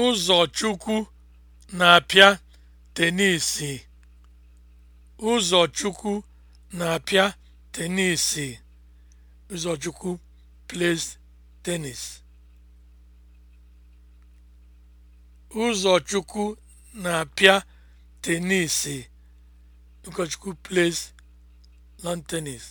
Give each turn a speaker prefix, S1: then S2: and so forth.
S1: Ụzọchukwu na-apịa tenisi. Ụzọchukwu na-apịa tenisi. Ụzọchukwu plays tennis. Ụzọchukwu na-apịa tenisi. Ụkọchukwu plays lawn tennis.